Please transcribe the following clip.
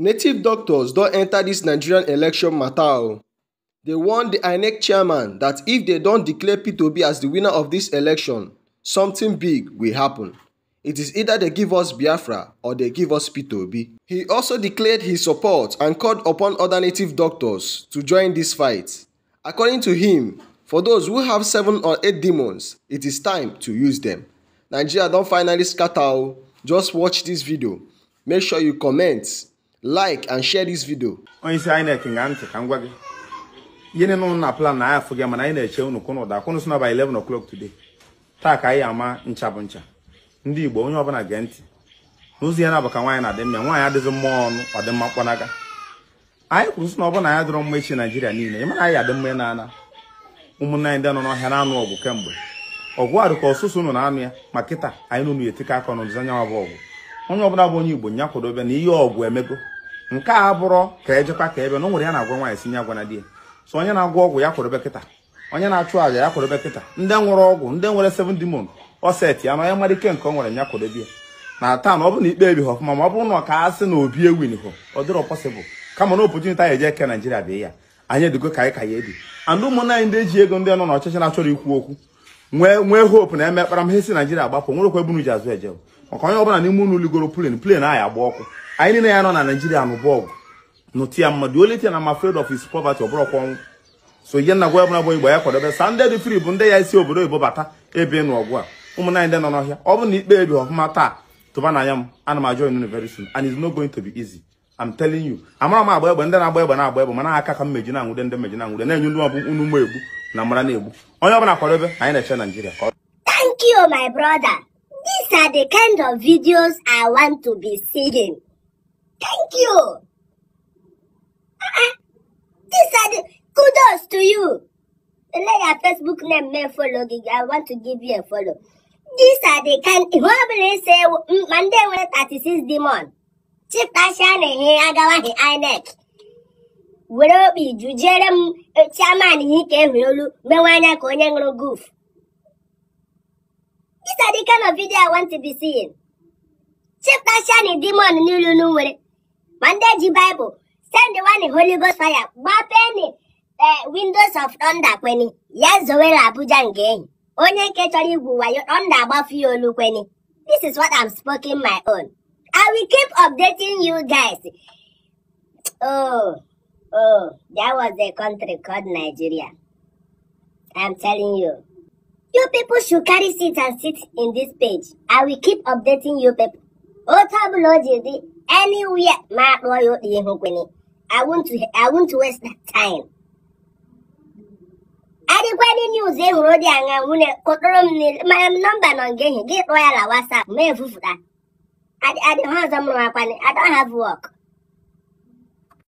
native doctors don enter this nigerian election mata oh. They dey warn di inec chairman that if they don't declare p2b as the winner of this election something big will happen it is either they give us biafra or they give us p2b he also declared his support and called upon other native doctors to join this fight according to him for those who have seven or eight demons it is time to use them. nigeria don finally scatter o oh. just watch this video make sure you comment like and share this video onye isi INEC nga ntị ka m gwa gị ihe niile ụnụ na plan na anyị gị mana anyị na-eche unu kwụnụ ụda kwụnụ sona by 11 o'clock today taa ka anyị ama ncha bụ ncha ndị Igbo onye ọbụla gee ntị n'ụzọ ihe na-abụ ka nwaanyị na-adị mma nwaanyị adịghị mma ọnụ ọ dị mma mkpanaga anyị kwuru sị na ọ na anyị dịrọ mma echi Naijiria niile ị mara anyị adị mma na-ana ụmụnne anyị ndị nọ n'ọhịa na-anụ ọgụ kemgbe ọgụ a dị ka ọsụsụ unu na-anụ ya ma kịta anyị nụnụ etika aka n'ụzọ anyanwụ bụ ọgụ onye ọbụla bụ onye igbo nya na ihe ọgwụ emego nke a bụrọ ka ejekwa ka ebe na o nwere ya na-agwa nwaanyị si nye agwana di ya so onye na-agwọ ọgwụ ya kwadobe kịta onye na-achụ aja ya kwadobe kịta ndị nwere ọgwụ ndị nwere seven demon ọset ya na onye mara ike nke o nwere nyakwadobe kwadobe ya na taa na ọ bụ na ikpe ebighị ọfụma ma ọ bụrụ na ọ ka na obi ewinho ọ dịrọ pọsịbụl kama na opotuniti anyị eje eke naijiria bịa ya anyị edigo ka anyị ka ya ebi and ụmụnna anyị ndị eji ego ndị nọ n'ọchịchị na-achọrọ ikwu okwu nwee nwee hope na emekpara m he si Naijiria agbapụ nwerekwa ebunu ji azụ eje maka onye ọbụla n'ime unu ligoro plane plane anyị agba ọkụ anyị niile ya nọ na Naijiria nụ ọgụ nụti ya mmadụ only na I'm afraid of is poverty ọbụrọkwa ọnwụ so ihe nna gwa ọbụla bụ igbo ya kwadobe sa ndị dị free bụ ndị ya isi obodo oyibo bata ebe nụ ọgụ a ụmụnna anyị ndị nọ n'ọhịa ọ bụ na ikpe ebi ọfụma taa tụba na anya m ana m ajọ inu very soon and it's not going to be easy I'm telling you amara m agba egbe ndị na-agba egbe na-agba egbe mana aka ka mmeji na-anwụde ndị mmeji na-anwụde na-enye ndị ọbụ unu mma egbu na mara na-egbu onye ọbụla kwadobe anyị na-eche Naijiria Thank you my brother these are the kind of videos I want to be seeing thank you uh-uh. these are the kudos to you let your Facebook name me follow gi I want to give you a follow these are the kind ihe ọ bụla ise ma nwere 36 demon chịtachịa na agawa agawaghị INEC were obi jụjere m chairman ihe ike ehuri olu mewe anya ka onye ṅụrụ gof isadi kano vidio of video I want to be n'ilu nwere ma ndị ji Bible send one Holy Ghost fire gbapeni windows of thunder kweni ya zowere Abuja nke enyi, onye nke chọrọ igwu wayo thunder agbafu ya olu kweni this is what I'm speaking my own I will keep updating you guys. Oh, oh, that was a country called Nigeria. I'm telling you. You people should carry seats and sit in this page. I will keep updating you people. Otabulojidi, anywhere, my boy, I want to, I want to waste that time. adịkwadị news ehụrụ dị aṅa nwunye kpọtụrụ m mmanya m nọmba nọ nke gị kpọọ ya na WhatsApp ma efufụta I, I don't have someone I don't have work.